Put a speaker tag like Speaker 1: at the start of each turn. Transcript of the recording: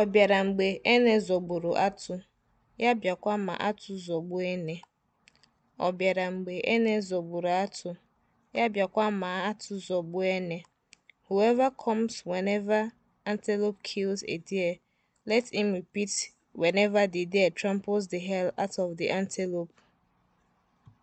Speaker 1: Ọ bịara mgbe ene zọgburu atụ, ya bịakwa ma atụ zọgbuo ene. Ọ Whoever comes whenever antelope kills a deer, let him repeat whenever the deer tramples the hell out of the antelope.